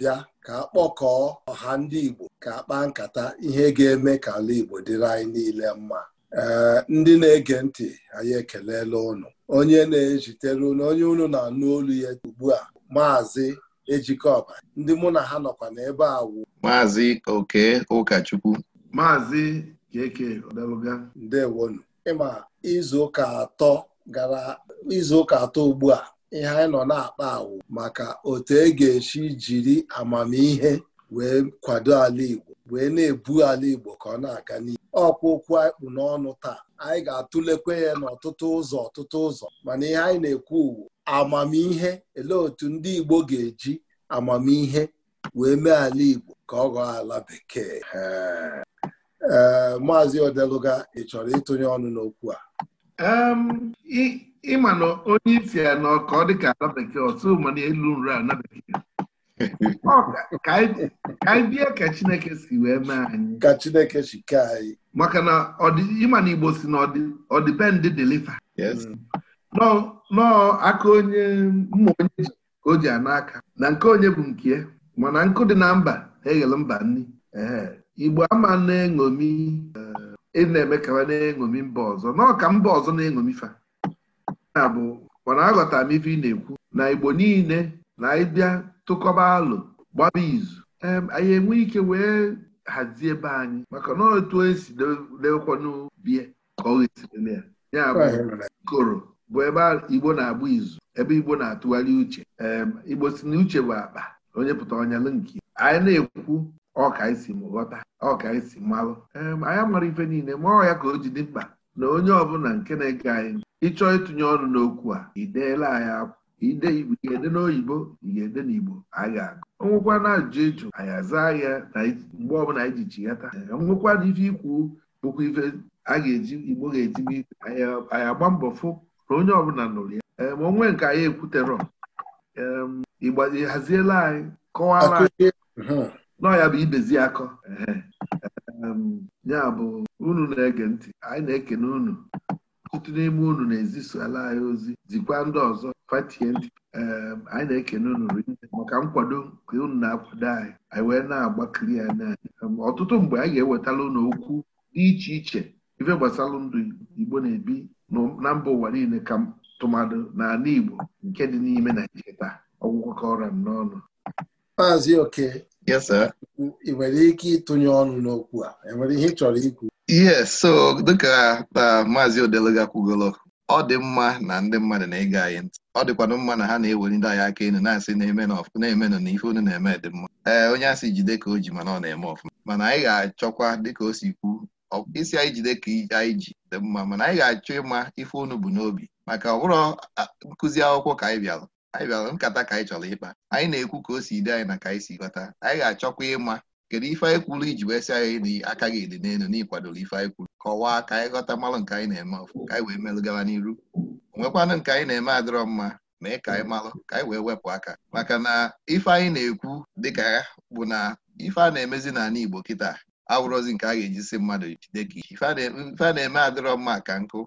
abịa ka a kpọkọọ ọha ndị Igbo ka a kpaa nkata ihe ga-eme ka ala Igbo dịrị anyị niile mma ee ndị na-ege ntị anyị ekelela ụnụ onye na-ejitere ụnụ onye ụnụ na-anụ olu ya ugbu a maazị Ejikọba ndị mụ na ha nọkwa n'ebe a wụ maazị Oke Ụkachukwu maazị Keke Odeluga ndewonu ịma izu ụka atọ gara izu ụka atọ ugbu a ihe anyị nọ na-akpa awụ maka otu e ga-esi jiri amamihe wee kwado ala Igbo wee na-ebu ala Igbo ka ọ na-aga n'ihu ọkwa okwu anyị kpụ n'ọnụ taa anyị ga atụlekwe ya n'ọtụtụ ụzọ ọtụtụ ụzọ mana ihe anyị na-ekwu uwu amamihe elee otu ndị Igbo ga-eji amamihe wee mee ala Igbo ka ọ ghọọ ala bekee ee maazị Odeluga ị chọrọ ịtụnye ọnụ n'okwu a ịma na onye isi ya na ọka ọ dịka ala bekee ọtụ mana elu nri ala bekee ka anyị bie ka chineke si wee mee anyị ka chineke si kee anyị maka na ịma na igbo si na ọdịbendị deliver mm. nọọ aka onye mma onye ji ka o ji n'aka na nke onye bụ nke mana nkụ dị na mba eghele mba nri igbo ama na-eṅomi eh, ị na-eme ka na-eṅomi mba ọzọ nọọ ka mba ọzọ na-eṅomi fa ya bụ mana aghọtara m ife ị na-ekwu na Igbo niile na ịbịa tụkọba alụ gbaba izu anyị enwe ike wee hazie ebe anyị maka na otu esi dekwanubie ka ọ ya ya bụ koro bụ ebe Igbo na-agba izu ebe Igbo na-atụgharị uche Igbo si na uche bụ akpa onye pụta ọnya nke anyị na-ekwu ọka isi m ghọta ọka isi malụ anyị mara ife niile ma ọ ya ka o ji dị mkpa na onye ọbụla nke na-ege anyị ịchọọ ịtụnye ọnụ n'okwu a ideela anyị akwụ ide ị ga-ede n'oyibo ị ga-ede n'igbo anyị ga-agụ ọnwụkwa na ajụjụ ịjụ anyị aza ya mgbe ọbụla anyị ji chighata ọnwụkwa na ife ikwu bụkwa ife a ga-eji igbo ga-ejibu ike anyị agba mbọ fụ na onye ọbụla nụrụ ya ma onwe nke anyị ekwuterọ igba haziela anyị kọwara anyị ya bụ ibezi akọ ya bụ unu na-ege ntị anyị na-ekene unu ọtụtụ n'ime unu na-ezisola anyị ozi zikwa ndị ọzọ fatie ntị anyị na-ekene unu rinne maka nkwado nke unu na-akwado anyị anyị wee na-agbakiri ya n'anyị ọtụtụ mgbe anyị ga-ewetala unu okwu dị iche iche ife gbasara ndụ Igbo na-ebi na mba ụwa niile ka tụmadụ n'ala Igbo nke dị n'ime Naijiria taa ọgwụkọkọra m n'ọnụ Maazị Oke ị nwere ike ịtụnye ọnụ n'okwu a enwere ihe ị chọrọ ikwu ihe so dịka uh, maazị Odeluga kwugolo ọ dị mma na ndị mmadụ na-ege anyị ntị ọ dịkwanụ mma na ha na-eweli ndị anyị aka elu na-asị na-emenụ na ife unu na-eme dị mma ee eh, onye asị jide ka o ji mana ọ na-eme ọfụma mana anyị ga-achọkwa dịka o si kwu isi anyị jide ka anyị ji dị mma mana anyị ga-achọ ịma ife onu bụ n'obi maka ọ nkụzi akwụkwọ ka anyị bịara anyị bịara nkata ka anyị chọrọ ịkpa anyị na-ekwu ka o si dị anyị na ka anyị si ghọta anyị ga-achọkwa ịma kedu ife anyị kwuru iji wee sị anyị na aka gị dị n'elu n'ịkwadoro ife anyị kwuru kọwaa ka anyị ghọta mmalụ nke anyị na-eme ọfụ ka anyị wee melụ gawa n'iru onwekwanụ nke anyị na-eme adịrọ mma mee ka anyị malụ ka anyị wee wepụ aka maka na ife anyị na-ekwu dịka ya bụ na ife a na-emezi n'ala Igbo kịta awụrọzi nke a ga-eji si mmadụ jide ka ife a na-eme adịrọ mma ka nkụ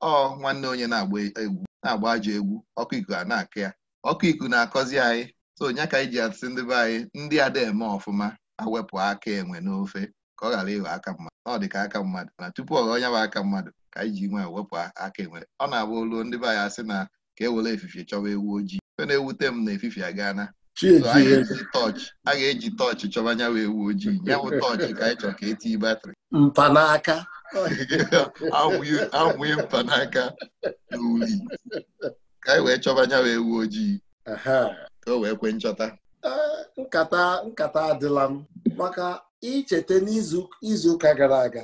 ọ nwanne onye na-agba ajọ egwu ọkụ iku a na-akụ ya ọkụ iku na-akọzi anyị so nya ka ji asị ndị be anyị ndị ada eme ọfụma awepụ aka enwe n'ofe ka ọ ghara ịghọ aka mmadụ ọ dị ka aka mmadụ na tupu ọ onye bụ aka mmadụ ka iji ji nwe wepụ aka enwe ọ na-agba oluo ndị be anyị asị na ka e were efifie chọwa ewu ojii fe na-ewute m na efifie na a ga-eji tọọchị chọba wee ewu ojii ya tọọchị ka anyị chọrọ ka etinye batrị mpanaka anwụghị mpanaka na ka anyị wee chọba wee ewu ojii ka o wee kwe nchọta eh, nkata nkata adịla m maka icheta n'izu ụka gara aga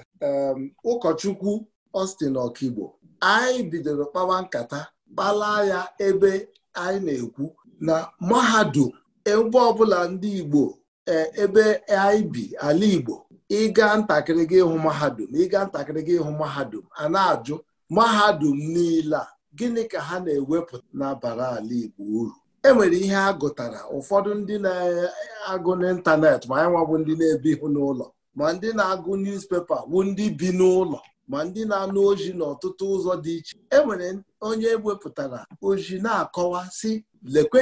ụkọchukwu Austin Okigbo anyị bidoro kpawa nkata kpala ya ebe anyị na-ekwu na mahadum ebe ọbụla ndị Igbo eh, ebe anyị bi ala Igbo ịga ntakịrị gị ịhụ mahadum ịga ntakịrị gị ịhụ mahadum a na-ajụ mahadum niile a gịnị ka ha na-ewepụta n'abara ala Igbo uru enwere ihe a gụtara ụfọdụ ndị na-agụ n'ịntanetị ma anyị nwabụ ndị na-ebihụ n'ụlọ ma ndị na-agụ newspaper bụ ndị bi n'ụlọ ma ndị na-anụ ozi n'ọtụtụ ụzọ dị iche enwere onye wepụtara ozi na-akọwa sị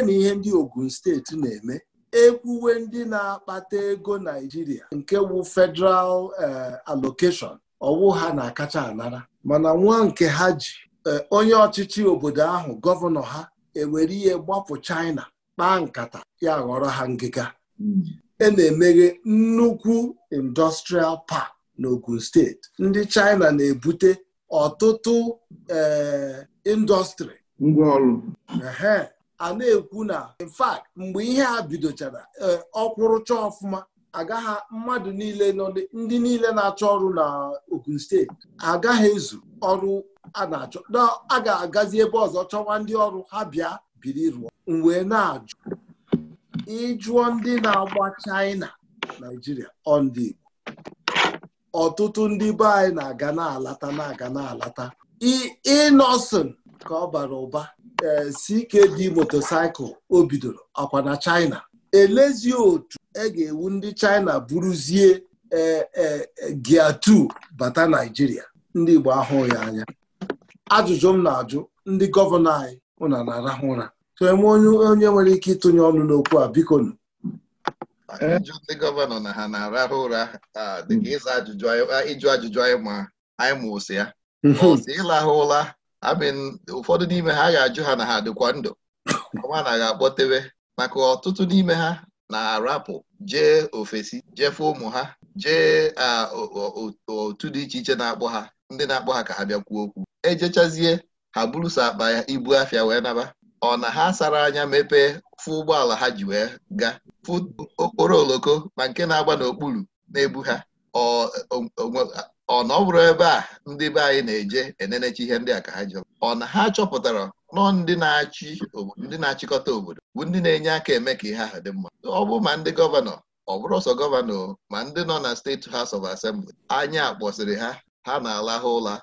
na ihe ndị Ogun steeti na-eme ekwuwe ndị na-akpata ego Naijiria nke wu federal eh, alokeshọn, ọwụ ha na-akacha anara mana nwa nke ha ji eh, onye ọchịchị obodo ahụ gọvanọ ha ewere ihe gbapụ China kpaa nkata ya ghọrọ ha ngịga hmm. e na-emeghe nnukwu industrial park n'Ogun steeti ndị China na-ebute ọtụtụ eh, indọstrị ngwaọrụ a na-ekwu na in fact mgbe ihe a bidochara eh, ọkwụrụcha ọfụma agaghị mmadụ niile ndị niile na-achọ ọrụ na Ogun steeti agaghị ezu ọrụ a na-achọ na a ga-agazi ebe ọzọ chọwa ndị ọrụ ha bịa biri rụọ wee na-ajụ ịjụọ ndị na-agba China Naijiria ọndị Igbo ọtụtụ ndị be anyị na-aga na-alata na-aga na-alata ịnọsịn ka ọ bara ụba e, CKD motosaịkụl o bidoro ọkwa na China elezi otu e ga-ewu ndị China buruzie e, e, gia 2 bata Naijiria ndị Igbo ahụghị anya ajụjụ m na-ajụ ndị gọvanọ anyị ụna na-arahụ ụra so m e onye nwere ike ịtụnye ọnụ n'okwu a biko ajụjụ ndị gọvanọ na ha na-arahụ ụra dịka ịjụ ajụjụ anyị ma anyị ma ose ya ọsị mhm. ịlahụ ụra ụfọdụ n'ime ha ga-ajụ ha na ha dịkwa ndụ ọma na ga-akpọtebe maka ọtụtụ n'ime ha na-arapụ jee ofesi jefe ụmụ ha jee otu dị iche iche na-akpọ ha ndị na-akpọ ha ka ha bịa kwuo okwu ejechazie ha buruso akpa ya ibu afịa wee naba ọ na ha sara anya mepee fụ ụgbọala ha ji wee ga fụ okporo oloko ma nke na-agba n'okpuru na-ebu ha ọ na ọ bụrụ ebe a ndị be anyị na-eje enenechi ihe ndị a ka ha jọ ọ na ha chọpụtara nọ ndị na-achị ndị na-achịkọta obodo bụ ndị na-enye aka eme ka ihe ahụ dị mma ọ bụ ma ndị gọvanọ ọ bụrụ ọsọ gọvanọ ma ndị nọ na steeti House of Assembly anya akpọsịrị ha ha na-alahụ ụla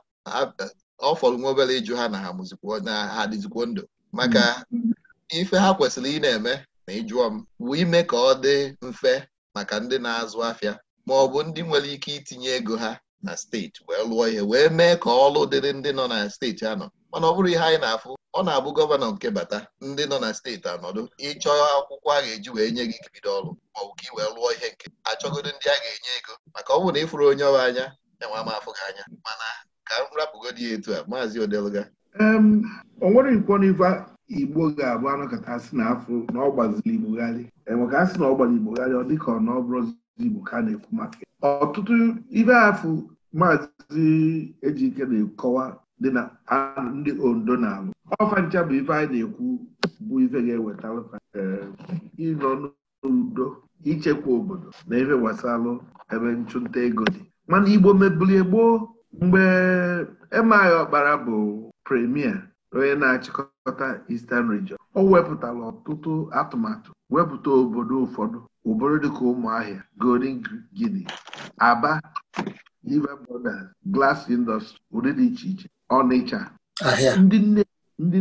ọ fọrọ nwa obere ịjụ ha na ha mụzikwa ha ndụ maka mm-hmm. ife ha kwesịrị ị na-eme na ịjụọ m bụ ime ka ọ dị mfe maka ndị na-azụ afịa ma ọ bụ ndị nwere ike itinye ego ha na steeti wee lụọ ihe wee mee ka ọlụ dịrị ndị nọ na steeti anọ mana ọ bụrụ ihe anyị na-afụ ọ na-abụ gọvanọ nke bata ndị nọ na steeti anọdụ ịchọ akwụkwọ a ga-eji wee nye gị ikebido ọrụ maọbụ ka ị wee lụọ ihe nke achọgodo ndị a ga-enye ego maka ọ bụrụ na ịfụrụ onye ọrụ anya enwe m afụ gị anya mana ka m rapụgodi etu a maazị odeluga o nwere nkwo igbo ga-abụ anụ asị na afọ na ọ gbaziri igbogharị e ka asị na ọ gbaziri ọ dịka ọ na ọ igbo ka na-ekwu maka ọtụtụ ibe afụ maazị ejike na-ekọwa dị na ndị ondo na-alụ ọfa ncha bụ ife anyị na-ekwu bụ ife ga-eweta ịnọ n'udo ichekwa obodo na ife gbasara ebe nchụnta ego dị mana igbo mebulie gboo mgbe Emeaghi Ọkpara bụ premier onye na-achịkọta Eastern Region o wepụtara ọtụtụ atụmatụ wepụta obodo ụfọdụ obodo dịka Ụmụahịa Golden Guinea Aba River Borders Glass Industry ụdị dị iche iche Ọnịcha ndị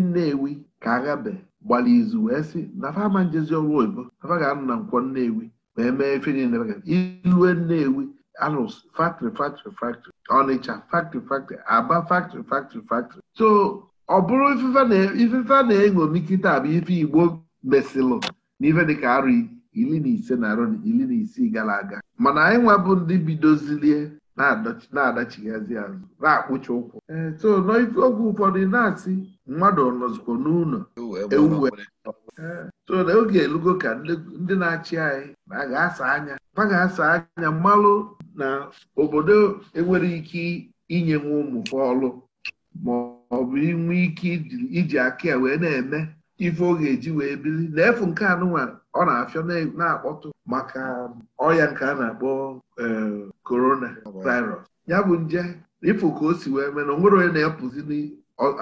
Nnewi ka aghabe gbara izu wee sị na fama njezi ọrụ oyibo afa ga-anọ na nkwọ Nnewi wee mee ife ilue Nnewi alụs factory factory factory ọnịcha factory factory aba factory factory factory so ọ bụrụ ifefe a na eṅomikita kịta bụ ife igbo mesilụ na dịka arụ iri na ise na arụ iri na isii gara aga mana anyị nwabụ ndị bidozilie na-adachighazi azụ na-akpụcha ụkwụ eh, so n'oge ụfọdụ na-asị mmadụ nọzikwa n'ụlọ ewu so na oge elugo ka ndị na-achị anyị na ga-asa anya ha ga-asa anya mmalụ na obodo enwere ike inye nwa ụmụ ọlụ ma ọ bụ inwe ike iji aka ya wee na-eme ife ọ ga-eji wee biri na efu nke anụnwa ọ na-afịọ na-akpọtụ maka ọya nke a na-akpọ korona e, virus ya bụ nje ịfụ ka o si wee mee na onwere onye na-apụzi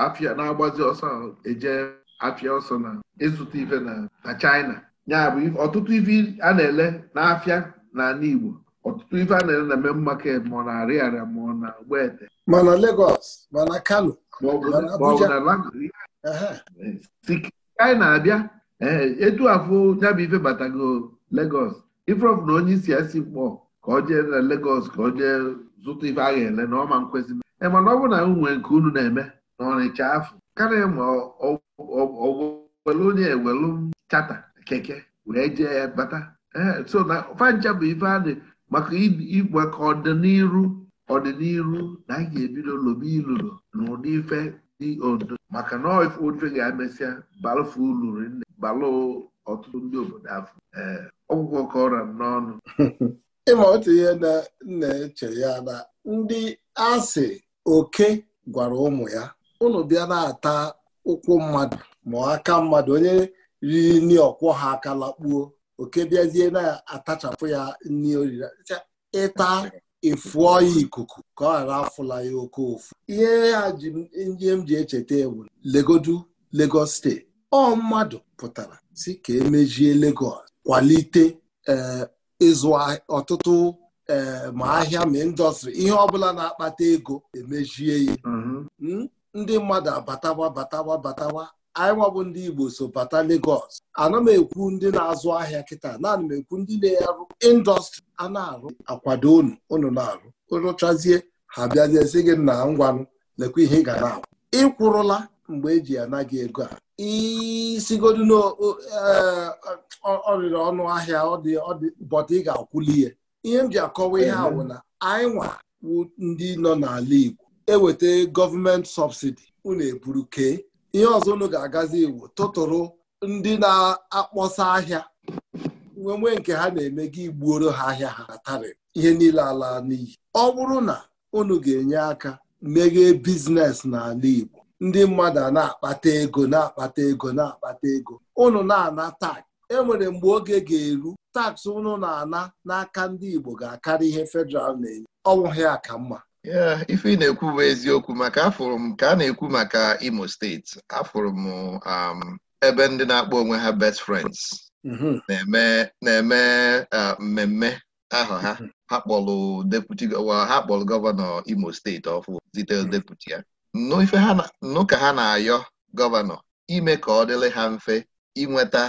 afịa na-agbazi ọsọ eje afịa ọsọ na ịzụta ife na China ya bụ ọtụtụ ife a na-ele n'afịa na n'Igbo. ọtụtụ ife a na-ele na eme market ma ọ na Ariaria ma ọ na Mgbete ma na Lagos ma na Kano ma ọ bụ na na-abịa eh, etu afọ ya bụ ife batago Lagos ifrọf na onye isi esi mkpọ ka ọ jee na legos ka ọ jee zụta ife a ga-ele na ọma nkwesị eh, mana ọ bụ na nwere nke unu na-eme na ọnịcha afọ karịa ma ọgwụ welu onye ewelu chata keke wee jee ya bata so na fancha bụ ife adị maka igwe ka ọdịniru na anyị ga-ebido lobe ilulu na ụdị ife dị odo maka na ofe ga-emesịa balụfe uluru nne balụ ọtụtụ ndị obodo afọ ọgwụgwọ ka ọra n'ọnụ ịma otu ihe na na-eche ya na ndị asị oke gwara ụmụ ya ụnụ bịa na-ata ụkwụ mmadụ mụọ aka mmadụ onye riri nri ọkwọ ha aka lakpuo oke bịazie na-atachapụ ya nri oriri ịta ịfụọ ya ikuku ka ọ ghara afụla ya oke ofu ihe ya ji ihe m ji echeta ewu legodu Lagos steeti ọ mmadụ pụtara si ka emejie legos kwalite eh, ịzụ ọtụtụ eh, ma ahịa ma indọstrị ihe ọbụla na-akpata ego emejie ya mm-hmm. hmm? ndị mmadụ abatawa batawa batawa anyị bụ ndị Igbo so bata legos ana m ekwu ndị na-azụ ahịa kịta naanị m ekwu ndị na-arụ indọstrị a na-arụ akwado unu unu na-arụ rụchazie ha bịazie gị na ngwanụ lekwa ihe ị ga na-akwụ ịkwụrụla mgbe eji ana gị ego a isigodu n'ọrịrị e, ọnụ ahịa bọta ị ga-akwụli ihe ihe m ji akọwa ihe awụ na anyị nwa ndị nọ n'ala Igbo eweta gọọmenti sọbsidi unu eburu kee ihe ọzọ unu ga-agazi iwu tụtụrụ ndị na-akpọsa ahịa nwee nke ha na-eme gị igbuoro ha ahịa ha atarị ihe niile ala n'iyi ọ bụrụ na unu ga-enye aka meghee biznes n'ala Igbo ndị mmadụ a na-akpata ego na-akpata ego na-akpata ego unu na-ana tak enwere mgbe oge ga-eru taks unu na-ana n'aka ndị Igbo ga-akarị ihe fedral na-enye ọ bụghị mma ife ị na-ekwu bụ eziokwu maka afụrụ m ka a na-ekwu maka Imo steeti afụrụ m um, ebe ndị na-akpọ onwe ha best friends mm-hmm. na-eme uh, mmemme ahụ ha mm-hmm. ha kpọlụ deputy ha kpọlụ gọvanọ Imo steeti ọfụ zitere mm-hmm. deputy ya nụ ka ha na-ayọ gọvanọ ime ka ọ dịrị ha mfe inweta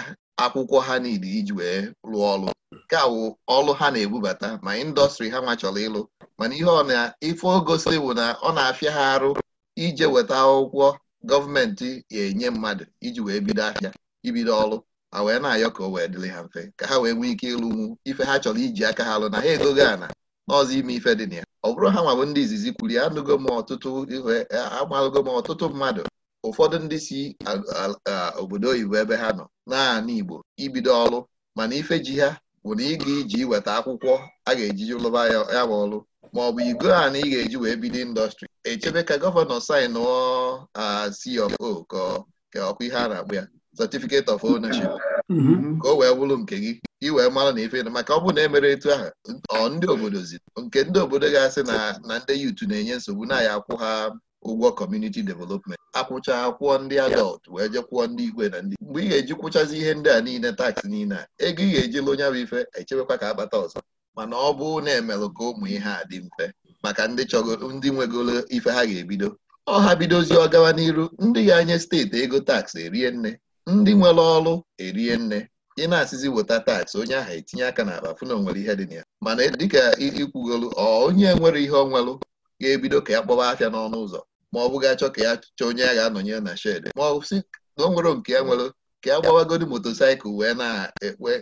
akwụkwọ ha niile iji wee rụọ ọrụ nke a wụ ọrụ ha na-ebubata ma indọstrị ha nwa chọrọ ịlụ mana ihe ọ na-ife ogosiri bụ na ọ na-afịa ha arụ ije weta akwụkwọ gọọmenti ga-enye mmadụ iji wee bido ahịa ibido ọrụ ma wee na-ayọ ka o wee dịrị ha mfe ka ha wee nwee ike ịlụ ịlụnwu ife ha chọrọ iji aka ha lụ na ha egogo ana n'ọzọ ime ife dị na ya ọ bụrụ ha bụ ndị izizi kwuru ya anụgo m ọtụtụ ihe amalụgo m ọtụtụ mmadụ ụfọdụ ndị si obodo oyibo ebe ha nọ naanị Igbo ibido ọrụ mana ife ji ha bụ na ịga iji iweta akwụkwọ a ga-eji lụba ya bụ ọrụ ma ọ bụ igo a na ị ga-eji wee bido indọstrị echebe ka gọvanọ saịnụ CO ka ọkwa ihe a na-akpụ ya certificate of ownership mm-hmm. ka o wee bụrụ nke gị ị wee mara na ife maka ọ bụ na emere etu ahụ ọ ndị obodo zi nke ndị obodo ga-asị na ndị yutu na-enye nsogbu na ya akwụ ha ụgwọ community development akwụcha kwụọ ndị adọlt wee je kwụọ ndị igwe na ndị mgbe ị ga-eji kwụchazi ihe ndị a niile taksị niile a ego ị ga-eji lụ onye bụ ife echebekwa ka akpata ọzọ mana ọ bụ na emelụ ka ụmụ ihe a dị mfe maka ndị nwegoro ndị nwegolo ife ha ga-ebido ọ ha bidozi ọ gawa n'iru ndị ga-anye steeti ego taksị erie nne ndị nwere ọrụ erie nne ị na-asịzi weta taksị onye ahụ etinye aka n'akpa fụ na ihe dị na ya mana dịka ikwugolu ọ onye nwere ihe ọ nwelụ ga-ebido ka ya kpọba afịa n'ọnụ ụzọ ma ọ bụghị achọ ka ya chọọ onye ya ga-anọnyere na shedị ma ọ sị na o nwere nke ya nwere ka ya gbawagodi motosaịkụl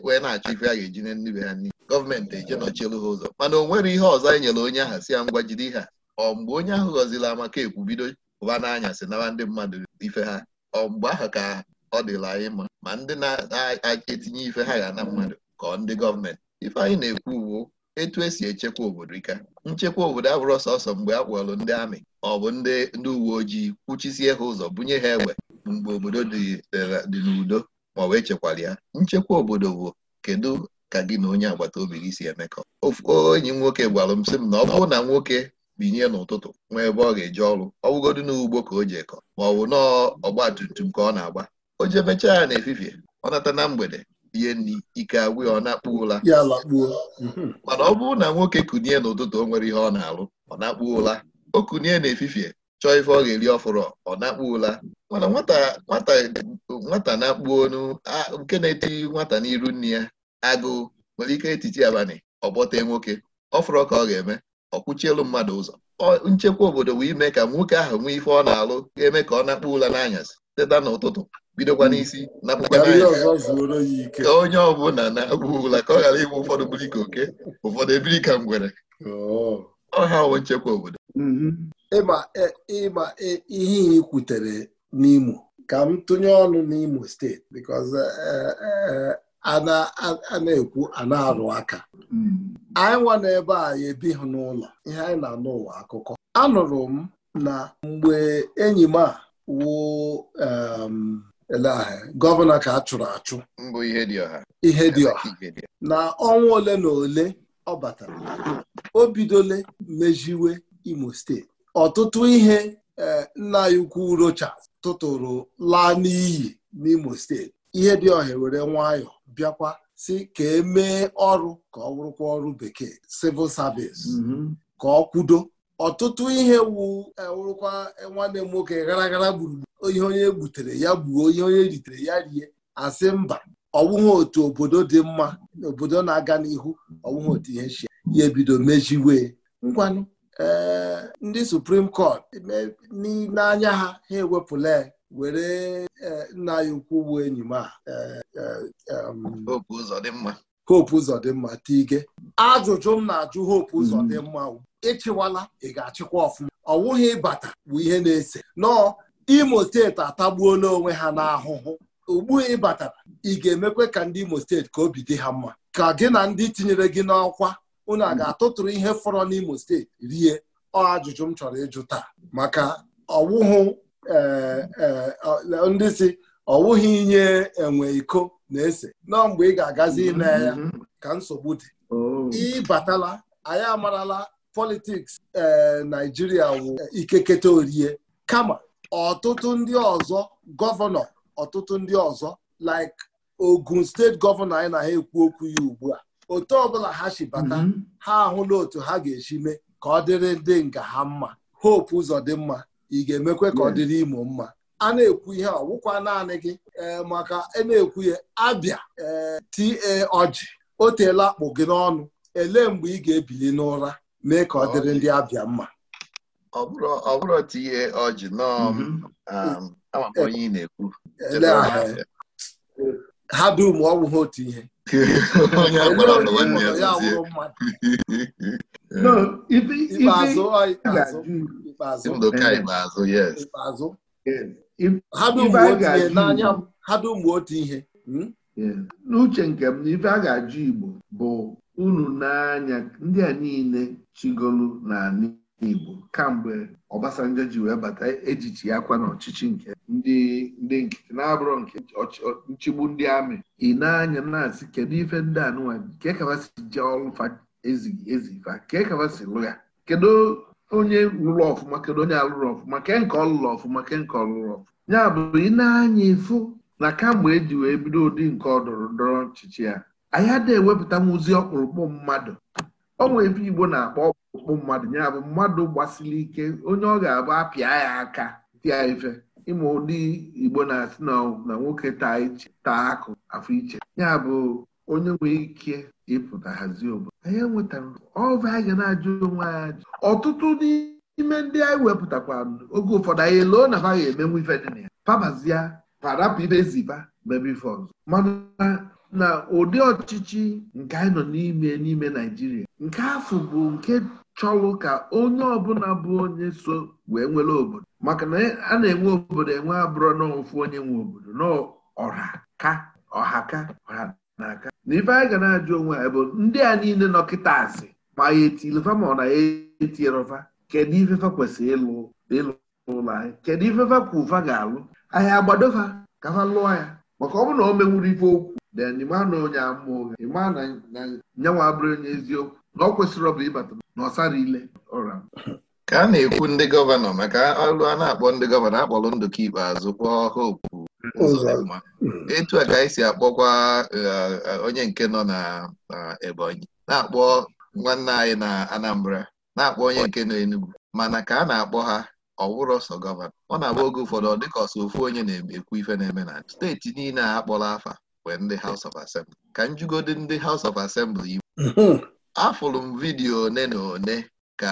wee na-achọ ife a ga-eji na nnibe ha n'ihi gọọmenti eje nọchielu ha ụzọ mana o nwere ihe ọzọ anyị e nyere onye ahụ si ya ngwa jide ha ọ mgbe onye ahụ ghọzila amaka ekwu bido ụba n'anyasị nawa ndị mmadụ ife ha ọ mgbe ahụ ka ọ dịla anyị mma ma ndị na-etinye ife ha ga na mmadụ ka ndị gọọmenti ife anyị na-ekwu uwu etu esi echekwa obodo ike nchekwa obodo abụrụ sọsọ mgbe a kpọrọ ndị amị ọ bụ ndị ndị uwe ojii kwuchisie ha ụzọ bunye ha egbe mgbe obodo dị n'udo ma ọ wee chekwara ya nchekwa obodo bụ kedu ka gị na onye agbata obi gị si emekọ enyi m nwoke gwara m sị m na ọ bụrụ na nwoke binye n'ụtụtụ nwee ebe ọ ga-eje ọrụ ọ bụgodu n'ugbo ka o ji ekọ ma ọ bụ ọgba tum tum ka ọ na-agba o jemechaa ya na-efifie ọ nata na mgbede rie nri ike agwụ ọ na-akpụ ụla mhm. mana ọ bụrụ na nwoke kunie n'ụtụtụ o nwere ihe ọ na-alụ ọ na-akpụ ụla o kunie n'efifie chọọ ife ọ ga-eri ọfụrụ ọ na-akpụ ụla mana nwata na-akpụ nke na-eteghị nwata n'iru nne ya agụụ nwere ike etiti abalị ọgbọtee nwoke ọfụrụ ka ọ ga-eme ọ kwụchielu mmadụ ụzọ nchekwa obodo wee ime ka nwoke ahụ nwee ife ọ na-alụ ga-eme ka ọ na-akpụ ụla n'anyasị teta n'ụtụtụ bidokwa n'isi napụkwa onye ọbụla na-agwụ ụla ka ọ ghara ịbụ ụfọdụ biri ka oke ụfọdụ ebiri ka ngwere ọha wo nchekwa obodo mhm. ịma e, ịma e, ihe ị kwutere n'Imo ka m tụnye ọnụ n'Imo steeti because e, a na-ekwu a na-arụ aka mm. anyị nwa ebe a ebighị n'ụlọ ihe anyị na-anụ ụwa akụkọ anụrụ m na mgbe enyi m a wụ ele ahịa gọvanọ ka a chụrụ achụ ihe dị ọha na ọnwa ole na ole ọ batara o bidole mejiwe imo steeti ọtụtụ ihe e, nna ya ukwu rocha tụtụrụ laa n'iyi n'imo steeti ihe dị ọha were nwayọ bịakwa si ka emee ọrụ ka ọ bụrụkwa ọrụ bekee civil service mm-hmm. ka ọ kwudo ọtụtụ ihe wu e, wụrụkwa e, nwanne m nwoke gara gara gburugburu ihe onye e gbutere ya gbuo ihe onye ritere ya rie asị mba ọwụghị otu obodo dị mma obodo na-aga n'ihu ọwụghị otu ihe chi ya ebido mejiwe ngwanụ ee ndị Supreme Court n'anya ha ha ewepụla were nna anyị ukwu bụ enyi m a Hope Uzodimma Tige ajụjụ m na-ajụ Hope Uzodimma ịchịwala ị ga-achịkwa ọfụma ọwụghị ịbata bụ ihe na-ese nọọ imo steeti atagbuola onwe ha n'ahụhụ ugbu ịbatara ị ga-emekwe ka ndị imo steeti ka obi dị ha mma ka gị na ndị tinyere gị n'ọkwa unu a ga-atụtụrụ ihe fọrọ n'imo steeti rie ọ ajụjụ m chọrọ ịjụ taa maka ọwụhụ e, e, ndị si ọwụghị inye enwe iko na-ese nọọ mgbe ị ga-agazi ime ya mm-hmm. ka nsogbu dị oh. ịbatala anyị amarala politiks eh, Naijiria wụ eh, ikeketa orie kama ọtụtụ ndị ọzọ gọvanọ ọtụtụ ndị ọzọ like Ogun steeti gọvanọ anyị na ha ekwu okwu ya ugbu a otu ọbụla ha si bata mhm. ha ahụla otu ha ga-esi mee ka ọ dịrị ndị nga ha mma hope ụzọ dị mma ị ga-emekwe ka ọ dịrị Imo mma a na-ekwu ihe ọgwụkwa naanị gị eh, maka a e na-ekwu ya abịa ta ọjị o teela akpụ gị n'ọnụ elee mgbe ị ga-ebili n'ụra mee ka ọ dịrị ndị abịa mma ọ bụrụ tinye ọjị um, mhm. um, ama onye na-ekwu ha dum ọ bụghị otu ihe ha dum otu ihe hmm? n'uche nke m na ife a ga-ajụ Igbo bụ unu n'anya ndị a niile chigolu n'ala Igbo kamgbe Obasanjo ji wee bata ejichi akwa n'ọchịchị nke ndị ndị nkịtị na-abụrọ nke nchigbu ndị amị ị n'anya anya na-asị kedu ife ndị a anụnwa nke kawasi je ọlụfa ezighi ezighị ezifa nke kawasi lụgha kedu onye lụrụ ọfụma kedu onye alụrụ ọfụma ke nke ọlụrụ ọfụma ke nke ọlụrụ ọfụma ya bụ ị na-anya ịfụ na kamgbe eji wee bido ụdị nke ọdọrọ ndọrọ ọchịchị ya anyị adịghị ewepụtanwuzi ọkpụrụkpụ mmadụ onwe ebe igbo na-akpọ ọkpụrụkpụ mmadụ ya bụ mmadụ gbasiri ike onye ọ ga-abụ apịa ya aka dị ya ife ịma ụdị igbo na-asị na nwoke taa iche taa akụ afọ iche ya bụ onye nwee ike ịpụta hazie obodo anyị enwetara ọva anyị ga na-ajụ onwe anyị ajụ ọtụtụ n'ime ndị anyị wepụtakwa oge ụfọdụ anyị eloo na ha ga-emenwu ife dị na ya pabazie parapụ ibe ziba mebe ife ọzọ mana na ụdị ọchịchị nke anyị nọ n'ime n'ime Naijiria nke afọ bụ nke chọlụ ka onye ọbụla bụ onye so wee nwere obodo maka na a na-enwe obodo enwe abụrụ n'ofu onye nwe obodo n'ọha ka ọha ka na aka na ife anyị ga na-ajụ onwe anyị bụ ndị a niile nọkịta asị ma ya etilfa ma ọ na ya etierọfa kedu ifefa kwesịrị ịlụ ịlụ ụlọ anyị kedu ifefa ka ụfa ga-alụ anyị agbadofa ka ha lụọ ya maka ọ bụrụ na o menwuru ife okwu then ịma na onye ama ụgha ịma na nyanwa abụrụ onye eziokwu na ọ kwesịrị ọ ịbata na ile ka a na-ekwu ndị gọvanọ maka ọrụ a na-akpọ ndị gọvanọ akpọrọ ndụka ikpeazụ kpọọ ha okwu etu a ka anyị si akpọkwa eh, eh, onye nke nọ na Ebonyi na-akpọ nwanne anyị na Anambra na-akpọ onye nke nọ Enugu mana ka a na-akpọ ha ọ ọsọ gọvanọ ọ na-abụ oge ụfọdụ ọ dịka ọsọ ofu onye na-ekwu ife na-eme na steeti niile a kpọrọ afa House of Assembly ka m jigodi ndị House of Assembly Igbo afụrụ m vidiyo one na one ka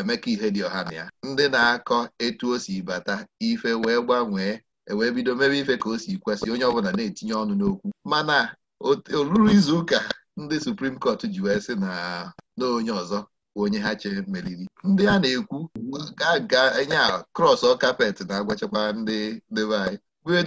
Emeka Ihedioha na ya ndị na-akọ etu o si bata ife wee gbanwee ewee bido mebe ife ka o si kwesị onye ọbụla na-etinye ọnụ n'okwu mana olulu izu ụka ndị Supreme Court ji wee sị na na onye ọzọ onye ha chere meriri ndị a na-ekwu ga ga enye a krọs kapet na-agwachakwa ndị debe anyị wee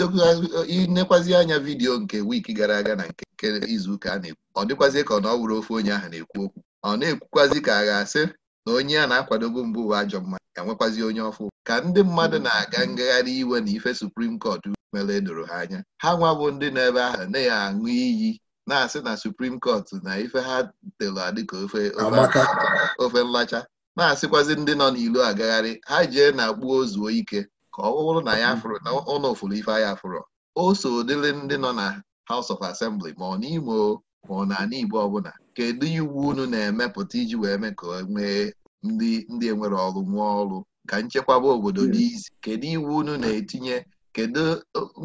inekwazị anya vidiyo nke wiiki gara aga na nke izuụka a na-ekwu ọ dịkwazị ka ọ na ọ ofe onye ahụ na-ekwu okwu ọ na-ekwukwazị ka a ga-asị na onye a na-akwadobu mbụ ụwa ajọ mma enwekwazi onye ọfụ ka ndị mmadụ hmm. na-aga ngagharị iwe na ife suprim kọt mere edoro ha anya ha nwabụ ndị na-ebe ahụ na-aṅụ iyi na-asị na suprim kọt na ife ha telu adịka ofe ofe nlacha na-asịkwazi ndị nọ n'ilu agagharị ha jee na gbuo zuo ike ka ọ bụrụ na ya mm-hmm. na ụlọ ofuru ife ya fụrụ o so dịrị ndị nọ na House of Assembly ma ọ n'Imo ma ọ na ala Igbo ọbụla kedu iwu unu na-emepụta iji wee mee ka nwee ndị ndị enwere ọrụ nwee ọrụ ka nchekwaba obodo dị izi kedu iwu unu na-etinye kedu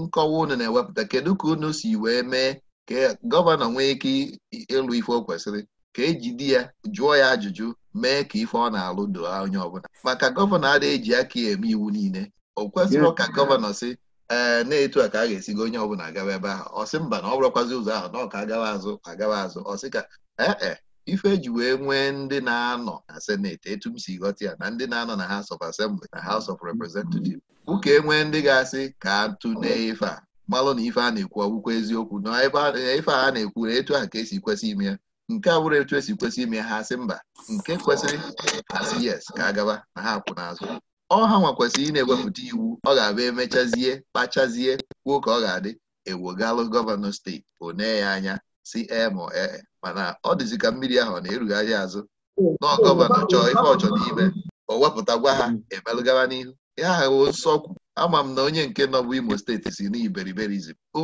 nkọwa unu na-ewepụta kedu ka unu si wee mee ka gọvanọ nwee ike ịlụ ife o kwesịrị ka e di ya jụọ ya ajụjụ mee ka ife ọ na-alụ doo onye ọbụla maka gọvanọ adịghị eji aka eme iwu niile o kwesịrị ka gọvanọ si ee na-etu a ka a ga-esigo onye ọbụla agawa ebe ahụ ọsị mba na ọ bụrụkwazi ụzọ ahụ na ọka agawa azụ agawa azụ ọsị ka ee e, ife eji wee nwee ndị na-anọ na seneti etu m si ghọta ya na ndị na-anọ na House of Assembly na House of Representatives ụka enwee ndị ga-asị ka atụnee ife a malụ na ife a na-ekwu ọgwụkwọ eziokwu na ife a na-ekwu na etu a ka esi kwesị ime ya nke a bụrụ etu esi kwesị ime ha sị mba nke kwesịrị asị yes ka a gaba na ha akwụ n'azụ ọha nwakwesịrị ị na-ewepụta iwu ọ ga abịa emechazie kpachazie kwuo ka ọ ga-adị ewogalụ gọvanọ steeti one ya anya si ema ee mana ọ dịzi ka mmiri ahụ na-erugharị azụ na gọvanọ chọọ ife ọchọ n'ime o wepụta gwa ha emelụgara n'ihu ya ahụ nsọkwu ama m na onye nke nọbụ imo steeti si na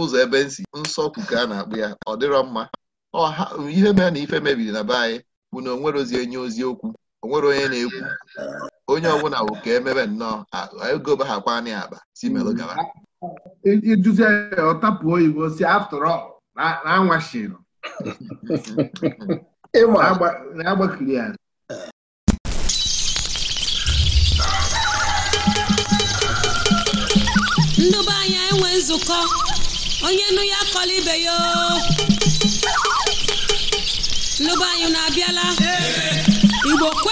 ụzọ ebe nsi nsọkwu ka a na-akpụ ya ọ dịrọ mma ihe mere na ife mebiri na be anyị bụ na o nwerozi enye ozi okwu onwere onye na-ekwu onye ọbụla bụ ka emebe nnọọ ego ba ha kwana mm-hmm. e, e ya akpa si melụ gaba iduzi ya ọtapụ oyibo si after all na na-agbakiri ya ndị be enwe nzukọ onye nụ ya akọla ibe ya ndị anyị na-abịala Igbo kwe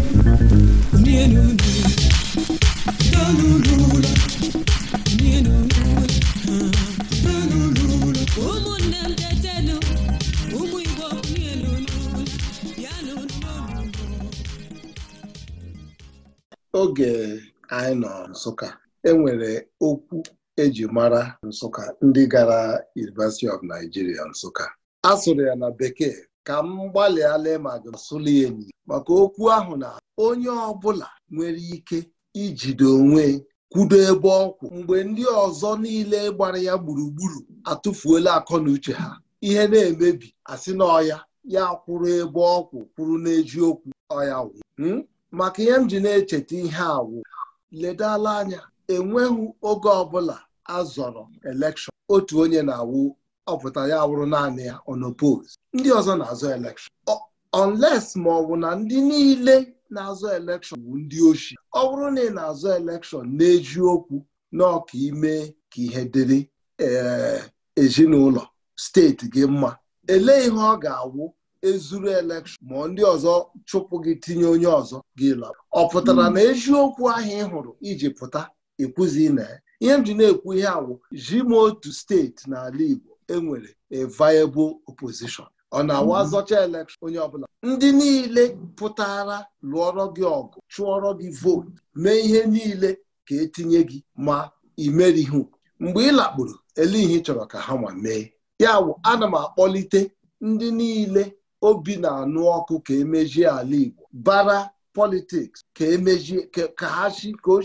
anyị nọ Nsụka enwere okwu eji mara Nsụka ndị gara University of Nigeria Nsụka a sụrụ ya na bekee ka m gbalịala ma gasụli enyi maka okwu ahụ na onye ọbụla nwere ike ijide onwe kwudo ebe ọkwụ mgbe ndị ọzọ niile gbara ya gburugburu atụfuola akọ na uche ha ihe na-emebi asị na ọya ya kwụrụ ebe ọkwụ kwụrụ n'eji okwu ọya wụ hmm? maka ihe m ji na-echeta ihe awụ ledala anya enweghị oge ọbụla a zọrọ elekshọn otu onye na-awụ ọpụta ya wụrụ naanị ya onopos ndị ọzọ na-azọ elekshọn onles ma ọ bụ na ndị niile na-azọ elekshọn bụ ndị ochie ọ bụrụ na ị na-azọ elekshọn na-eji okwu n'ọka ime ka ihe dịrị eh, ezinụlọ steeti gị mma elee ihe ọ ga-awụ ezuru elekshọn ma ndị ọzọ chụpụ gị tinye onye ọzọ gị lọ ọ pụtara hmm. na eziokwu ahụ ị hụrụ iji pụta ekwuzi na ya ihe m ji na-ekwu ihe awụ ji m otu steeti n'ala Igbo enwere a viable opposition ọ na-awa hmm. azọcha elekshọn onye ọbụla ndị niile pụtara lụọrọ gị ọgụ chụọrọ gị vootu mee ihe niile ka etinye gị ma imerihu mgbe ị lakpuru ele ihe chọrọ ka ha nwa mee ya wụ ana m akpọlite ndị niile obi na-anụ ọkụ ka emejie ala Igbo bara politiks ka emejie ka ha si ka o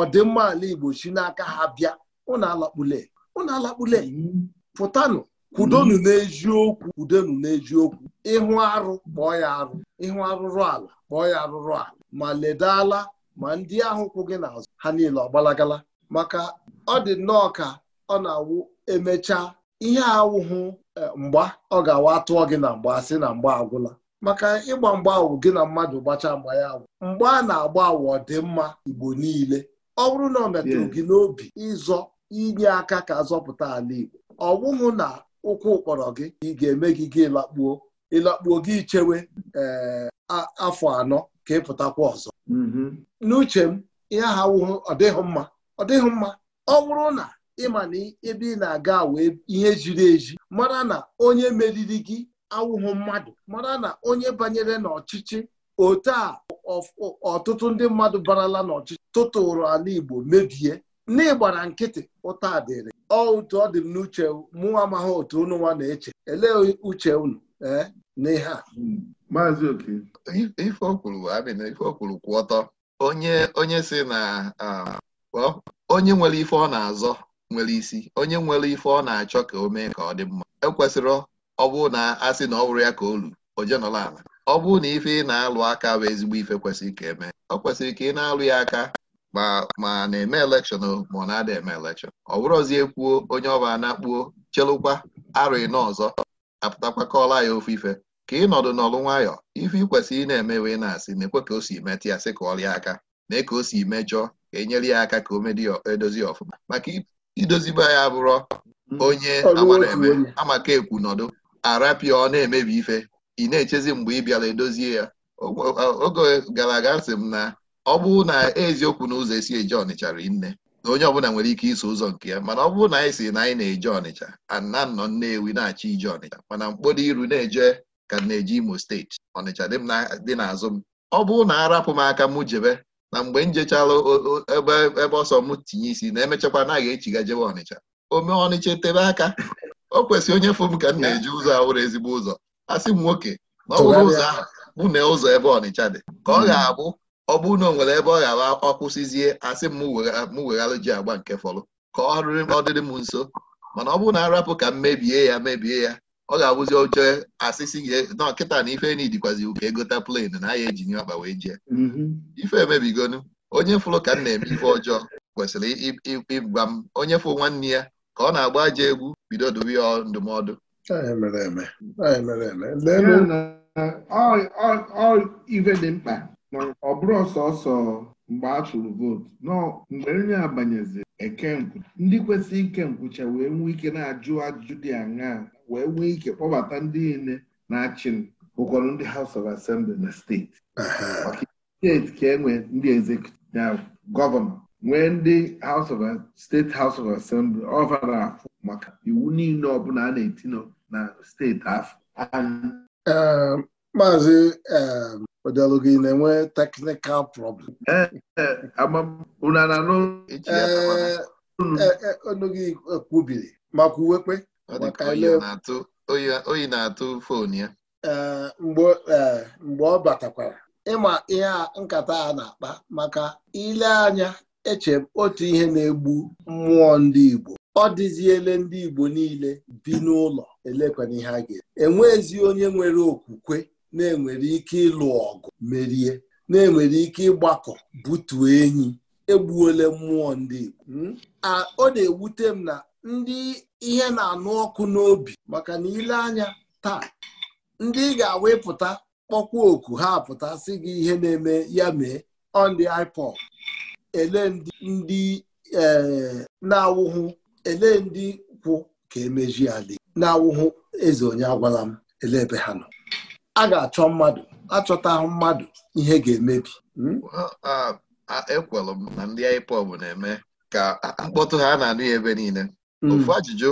ọdịmma ala Igbo si n'aka ha bịa unu alakpule unu alakpule pụtanụ kwudonu n'eziokwu kwudonu n'eziokwu ịhụ arụ kpọọ ya arụ ịhụ arụrụ ala kpọọ ya arụrụ ala ma ledala ma ndị ahụ kwụ gị n'azụ ha niile ọgbalagala maka ọ dị nnọọ ka ọ na-awụ emechaa ihe awụhụ E, mgba ọ ga-awa atụọ gị na mgba sị na mgba agwụla maka ịgba mgba awụ gị na mmadụ gbachaa mgba ya awụ mgba a na-agba awụ ọ dị mma Igbo niile ọ bụrụ na ọ metụrụ gị n'obi ịzọ inye aka ka azọpụta ala Igbo ọ bụghị na ụkwụ kpọrọ gị ị ga-eme gị gị ịlakpuo ịlakpuo gị ichewe e, afọ anọ ka ịpụtakwa ọzọ mm-hmm. n'uche m ihe ahụ ọ dịghị mma ọ dịghị mma ọ bụrụ na ịma na ebe ị na-aga wee ihe ziri ezi mara na onye meriri gị awụhụ mmadụ mara na onye banyere n'ọchịchị ote a ọtụtụ ndị mmadụ barala n'ọchịchị tụtụrụ ala Igbo mebie n'ịgbara nkịtị ụta dịrị ọ otu ọ dị m n'uche mụ amaghị otu unu nwa na-eche elee uche unu eh, n'ihe a maazị oke ife okwuru na ife okwuru kwụ ọtọ onye onye si na ah, onye nwere ife ọ na-azọ nwere isi onye nwere ife ọ na-achọ ka o mee ka ọ dị mma ekwesịrị ọ bụrụ na asị na ọ bụrụ ya ka olu luru oje ala ọ na ife ị na-alụ aka bụ ezigbo ife kwesịrị ka emee ọ kwesịrị ka ị na-alụ ya aka ma na-eme elekshọn ma ọ na-ada eme elekshọn ọ bụrụzie kwuo onye ọba na-akpuo chelụkwa arụ ịnọ ọzọ apụtakwa kọọla ya ofe ife ka ị nọdụ n'ọlụ nwayọọ ife ị kwesịrị ị na eme wee na-asị na-ekwe ka o si metụ ya sị ka ọlịa aka na ka o si mejọọ ka e ya aka ka o medozi ọfụma maka idozibe ya bụrụ mm. onye agbara amaka ekwu nọdụ arapịa ọ na-emebi ife ị na-echezi mgbe ị bịara edozie ya oge gara aga sị m na ọ bụrụ na eziokwu na ụzọ esi eje ọnịcha nne na onye ọbụla nwere ike iso ụzọ nke ya mana ọ bụrụ na anyị si na anyị na-eje ọnịcha ana nọ nnewi na-achị ije ọnịcha mana mkpọdo iru na-eje ka na-eje imo steeti ọnịcha dị n'azụ m ọ bụrụ na arapụ m aka mụ jebe na mgbe m ebe ebe ọsọ m tinye isi na emechakwa anaghị echiga jebe ọnịcha ome ọnịcha etebe aka o kwesịrị onye fụ m ka m na-eji ụzọ ahụrụ ezigbo ụzọ asị m nwoke na ọ bụrụ ụzọ ahụ mụ na ụzọ ebe ọnịcha dị ka ọ ga-abụ ọ bụrụ na o nwere ebe ọ ga ọkwụsịzie asị m m weghalụ ji agba nke fọlụ ka ọ dịrị m nso mana ọ bụrụ na arapụ ka m mebie ya mebie ya ọ ga-abụzi oche asịsị nọ kịta na ife ni dịkwazi ka egota plen na ya ejinye ọkpa wee jee mm-hmm. ife emebigonu onye fụrụ ka m na-eme ife ọjọọ kwesịrị ịgwa m onye fụ nwanne ya ka ọ na-agba aja egwu bido dobe ya ndụmọdụ ife dị mkpa ọ bụrụ ọsọsọ mgbe a tụrụ vootu nọ mgbe onye abanyezi e ndị kwesịrị ike nkwụcha wee nwee ike na-ajụ ajụjụ dị aṅaa wee nwee ike kpọbata ndị niile na-achị m ndị House of Assembly na steeti maka steeti ka enwe ndị executive gọvanọ nwee ndị steeti House of Assembly ọvara afọ maka iwu niile ọbụla a na-etinye na steeti afọ um, maazị um, odelugị na-enwe teknikal problem eh, eh, unu eh, gị kwubiri ma kwuwekwe oyi na-atụ fonu ya e, mgbe ọ batakwara ịma ihe nkata a na-akpa maka ile anya eche m otu ihe na-egbu mmụọ ndị Igbo ọ dịziele ndị Igbo niile bi n'ụlọ elekwana ihe a ga-eme enwezi onye nwere okwukwe na-enwere ike ịlụ ọgụ merie na-enwere ike ịgbakọ butuo enyi egbuole mmụọ ndị Igbo hmm? ọ na-ewute m na ndị ihe na-anụ ọkụ n'obi maka na ile anya taa ndị ga-awepụta kpọkwa oku ha apụta sị gị ihe na-eme ya mee on the iPod ele ndị eh, na-awụhụ ele ndị kwụ ka emeji ala na-awụhụ eze onye agwala m ele ebe ha nọ a ga-achọ mmadụ achọtahụ mmadụ ihe ga-emebi hmm? ekwelụ m na ndị iPod na-eme ka mkpọtụ ha na-anụ ebe niile ofu mm. ajụjụ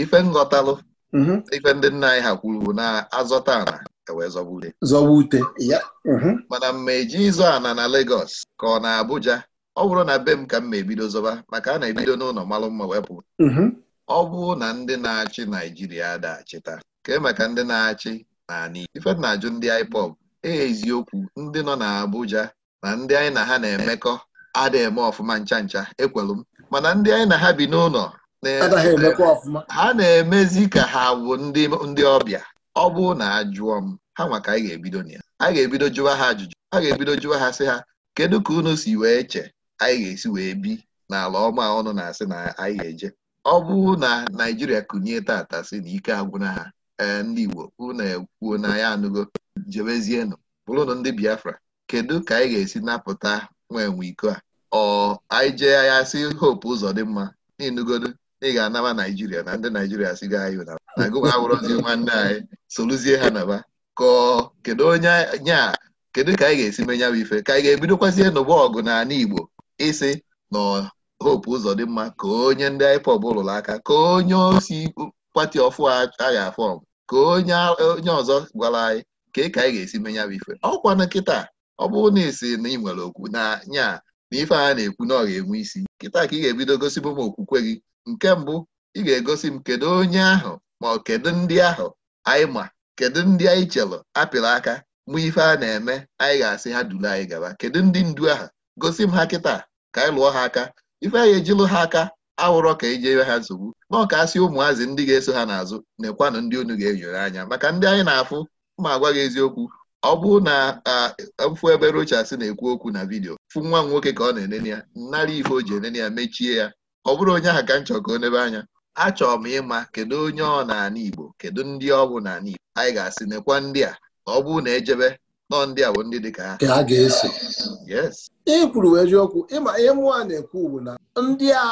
ife nghọtalụ mm-hmm. ife ndị nna anyị ha kwuru na azọta ana ewee zọba ute zọba ute mm-hmm. mana mma eji ịzọ ana na legos ka ọ na Abuja ọ bụrụ na be m ka m ma ebido zọba maka a na-ebido n'ụlọ malụ mma wepụ mm-hmm. ọ bụrụ na ndị na-achị Naijiria dachịta kee maka ndị na-achị naanị ife na-ajụ ndị IPOB e eziokwu ndị nọ na Abuja na ndị anyị na ha na-emekọ ada eme ọfụma ncha ncha ekwelu m mana ndị anyị na ha bi n'ụlọ ha na-emezi ka ha bụ ndị ọbịa ọ bụrụ na ajụọ m ha nwa ka anyị ga-ebido na ya a ga-ebido jụwa ha ajụjụ a ga-ebido jụwa ha sị ha kedu ka unu si wee che anyị ga-esi wee bi n'ala ọma ọnụ na-asị na anyị ga-eje ọ bụ na Naijiria kụnye tata sị na ike agwụna ha ee ndị Igbo unu ekwuo na ya anụgo jebezienụ bụrụnụ ndị Biafra kedu ka anyị ga-esi napụta nwa enwe iko a ọ anyị jee ya sị hope ụzọ dị mma n'inugodo ị ga-anaba naijiria na ndị naijiria si ga anyị na gụwa awụrọzi nwanne anyị soluzie ha naba kọọ kedu onye nya kedu ka anyị ga-esi menya bụ ife ka anyị ga-ebidokwazie n'ụgbọ ọgụ na ana igbo ịsị na hope ụzọ dị mma ka onye ndị IPOB ụlọ aka ka onye osi pati ọfụ a ga-afọm ka onye ọzọ gwara anyị ka ka anyị ga-esi menya bụ ife ọkwa na nkịta ọ bụrụ na esi na ị nwere okwu na nya na ife a na-ekwu na ọ ga-enwe isi nkịta ka ị ga-ebido gosi m okwukwe gị nke mbụ ị ga-egosi m kedu onye ahụ ma ọ kedu ndị ahụ anyị ma kedu ndị anyị chelụ apịrị aka mụ ife a na-eme anyị ga-asị ha duru anyị gaba kedu ndị ndu ahụ gosi m ha kịta ka anyị lụọ ha aka ife anyị ejilụ ha aka awụrọ ka eji ewe ha nsogbu ma ọ ka asị ụmụazị ndị ga-eso ha n'azụ na ndị unu ga-enyere anya maka ndị anyị na-afụ ma agwa gị eziokwu ọ bụrụ na mfụ ebe rochas na-ekwu okwu na vidiyo fụ nwa m nwoke ka ọ na-enene ya nnara ife o ji enene ya mechie ya ọ bụrụ onye ahụ ka m chọrọ ka nebe anya achọrọ m ịma kedu onye ọ na-ana Igbo kedu ndị ọ bụ na Igbo anyị ga-asị nekwa ndị a ọ bụrụ na ejebe nọọ ndị a bụ ndị dị ka ha ga-eso ị kwuru wee jiokwu ịma ihe mụọ a na-ekwu bụ na ndị a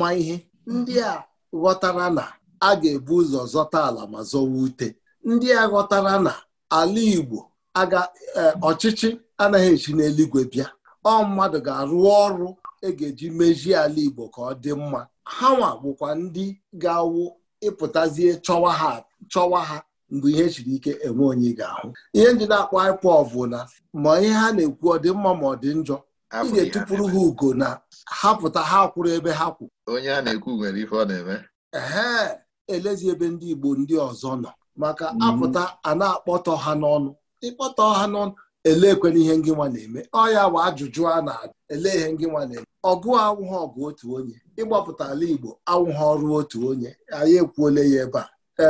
ma ihe ndị a ghọtara na a ga-ebu ụzọ zọta ala ma zọwa ute ndị a ghọtara na ala Igbo aga eh, ọchịchị anaghị esi n'eluigwe bịa ọ mmadụ ga-arụ ọrụ e ga-eji mejie ala Igbo ka ọ dị mma ha nwa bụkwa ndị ga-awụ ịpụtazie chọwa ha mgbe ihe siri ike enwe onye ga-ahụ ihe ndị na-akpọ ịkwụ na ma ihe ha na-ekwu ọ dị mma ma ọ dị njọ ị ga-etụpụrụ ha ugo na ha pụta ha kwụrụ ebe ha kwụ onye a na-ekwu nwere ife ọ na-eme ee elezi ebe ndị Igbo ndị ọzọ nọ maka mm. apụta a na-akpọtọ ha n'ọnụ ịkpọtọ ha n'ọnụ ele ekwena ihe ngịnwa na-eme ọ ya bụ ajụjụ a na-ele ihe ngịnwa na-eme ọgụ awụghọ ọgụ otu onye ịgbapụta ala Igbo awụghọ ọrụ otu onye anyị ekwuole ya ebe a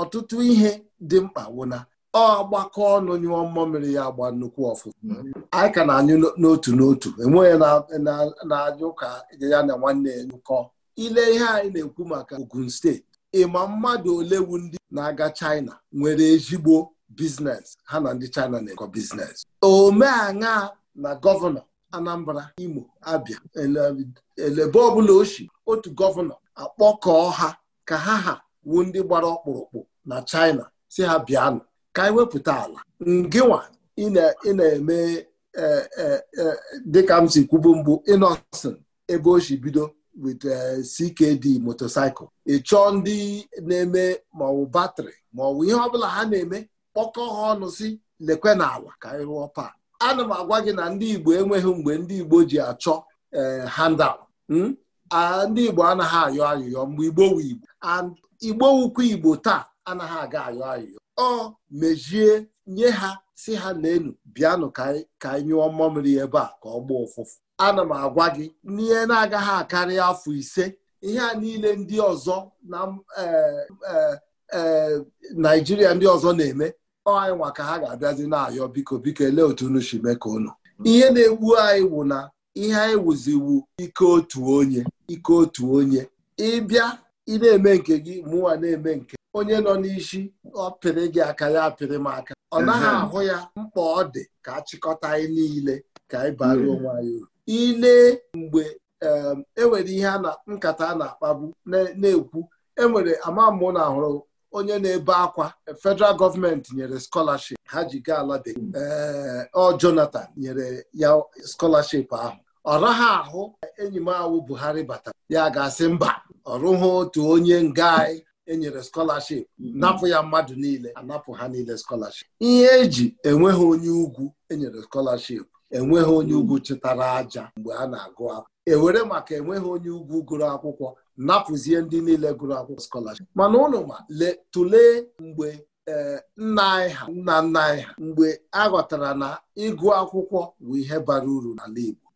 ọtụtụ ihe dị mkpa wụna ọ gbakọ ọnụ nyụọ mmụọ mmiri ya agba nnukwu ọfụma anyị ka na-anyụ n'otu n'otu enweghị na-anyụ ka ya na nwanne ya nyụkọ ile ihe anyị na-ekwu maka Ogun steeti ịma mmadụ ole wu ndị na-aga China nwere ezigbo biznes ha na ndị China na-ekọ biznes omeaṅa na gọvanọ Anambra Imo Abia elebe ọbụla oshi otu gọvanọ akpọkọọ ha ka ha ha wu ndị gbara ọkpụrụkpụ na China si ha bịanụ ka anyị wepụta ala ngịnwa ị na-eme e, e, e, dịka m si kwubu ebe o si bido wit CKD motorcycle ị chọọ ndị na-eme maọbụ batrị maọbụ ihe ọbụla ha na-eme kpọkọ ha ọnụ si lekwe n'ala ka anyị rụọ pak ana m agwa gị na ndị Igbo enweghị mgbe ndị Igbo ji achọ out. Eh, hmm? ndị Igbo anaghị ayọ ayụyọ mgbe Igbo wu Igbo Igbo wukwu Igbo taa anaghị aga ayọ ayụyọ ọ mejie nye ha si ha na n'elu bịanụ ka anyị nyụọ mmamịrị ebe a ka ọ gbaa ụfụfụ ana m agwa gị n'ihe na-agaghị akarị afọ ise ihe a niile ndị ọzọ na eh, eh, Naịjirịa ndị ọzọ na-eme ọanyị nwa ka ha ga-abịazi na-ayọ biko biko elee otu unu si mee ka ihe na-egbu anyị wụ na ihe anyị wụziwu ike otu onye ike otu onye ịbịa ị na-eme nke gị mụnwa na-eme nke onye nọ n'isi ọ pịrị gị aka ya apịrị m aka ọ naghị ahụ ya mkpa ọ dị ka achịkọta anyị niile ka anyị bara onwe anyị uru ile mgbe enwere e ihe nkata a na akpagbu na-ekwu enwere ama mụ na ahụrụ onye na-ebe akwa federal gọọmenti nyere skọlaship ha ji gaa ala bekee ọ Jonathan nyere ya skọlaship ahụ ọ raha ahụ enyi m awụ Buhari batara ya ga-asị mba ọ otu onye nga anyị enyere skọlaship napụ ya mmadụ niile anapụ ha niile scholarship ihe eji enweghị onye ugwu enyere scholarship enweghị onye ugwu chịtara aja mgbe a na-agụ akwụkwọ ewere maka enweghị onye ugwu gụrụ akwụkwọ napụzie ndị niile gụrụ akwụkwọ skọlaship mana ụnụ ma tụlee mgbe eh, nna anyị ha nna nna anyị ha mgbe a ghọtara na ịgụ akwụkwọ bụ ihe bara uru n'ala Igbo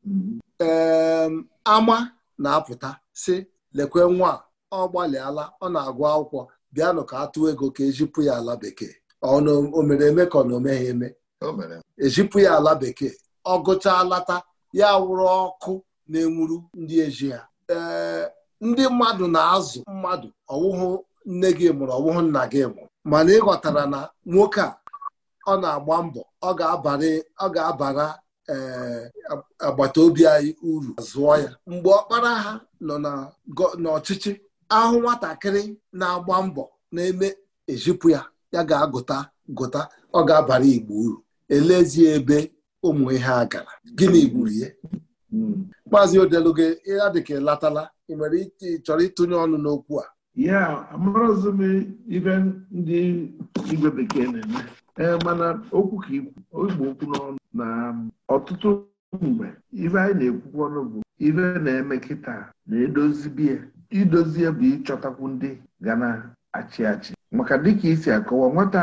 ama na-apụta si lekwe nwa ọ gbalịala ọ na-agụ akwụkwọ bịanụ ka atụ ego ka ejipụ ya ala bekee o mere eme ka ọ na omeghị eme ejipụ e ya ala bekee ọ gụchaa lata ya wụrụ ọkụ na-enwuru ndị eji ha ee eh, ndị mmadụ na-azụ mmadụ ọwụhụ nne gị mụrụ ọwụhụ nna gị mụrụ mana ịghọtara na nwoke a ọ na-agba mbọ ọ ga-abara eh, agbata obi anyị uru zụọ ya mgbe ọkpara ha nọ n'ọchịchị ahụ nwatakịrị na-agba mbọ na-eme ejipụ ya ya ga-agụta gụta ọ ga-abara igbo uru elezie ebe ụmụ ihe a gara gịnị gburu ye hmm. maazị ya dịka latala ị nwere ike chọrọ ịtụnye ọnụ n'okwu a ya amarazị m ibe ndị igwe bekee na-eme ee mana okwu ka ikwu igbo okwu n'ọnụ na um, ọtụtụ mgbe ibe anyị na-ekwukwu ọnụ bụ Ibe na-eme kịta na-edozi biya idozie bụ ịchọtakwu ndị ga na-achị achị maka dịka isi akọwa nwata